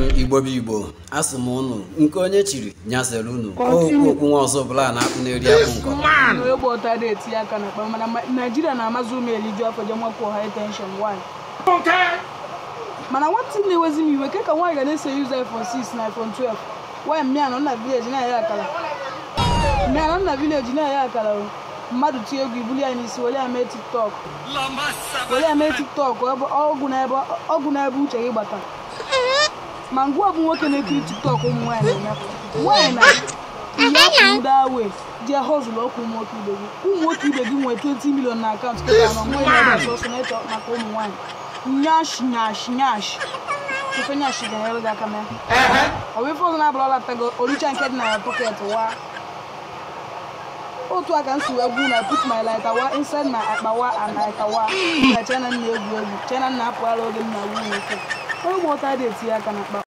igbo bụ igbo asị m ụnụ nke onye chiri nyasịrị ụnụ okwu nwa ọzọ bụla na-akpụ n'eri akpụ nkọ mana nwata na-ewezi m iwe ke ka nwaanyị ga na-ese yuzu iphone 6 na iphone 12 nwaanyị na vileji na-aya akara akara mmadụ tie egwu ibuli ya n'isi were ya mee tiktok were ya n'ebe uche gị gbata ma ngwa bụ nwoke na-ekiri tiktok ụmụ nwanyị na-emepụ nwaanyị na ihe ndị awe jee hozụlụ ọkụ ụmụ nwoke ibe gị ụmụ nwoke ibe gị nwee 20 milion na akaụntụ kịta anọ nwa na na sọsọ na-eche maka ụmụ nwanyị nyash nyash nyash ife nyash ga-enyere gị aka mee ọ bụ ife ọzọ na-abụla ọlatago oricha nke dị na ya pọket wa otu aka m si wee gwu na put my light awa inside my akpa wa and light awa na chena na-egwu egwu chena na-apụghara oge m na-agwu nwoke onye ụmụ ọta dị etinye aka na mkpa